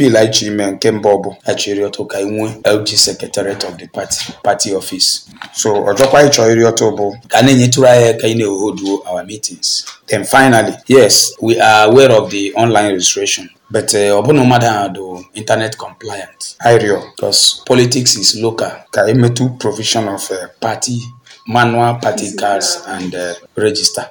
appeal anyị chọrọ ime nke mbụ bụ anyị chọrọ ka nwee LG secretariat of the party party office so ọjọkwa anyị chọrọ ọtọ bụ ka a na-enyetụrụ anyị aka na our meetings then finally yes we are aware of the online registration but eh, ọ bụna mmadụ ahụ do internet compliant irio because politics is local ka emetu provision of uh, party manual party cards and uh, register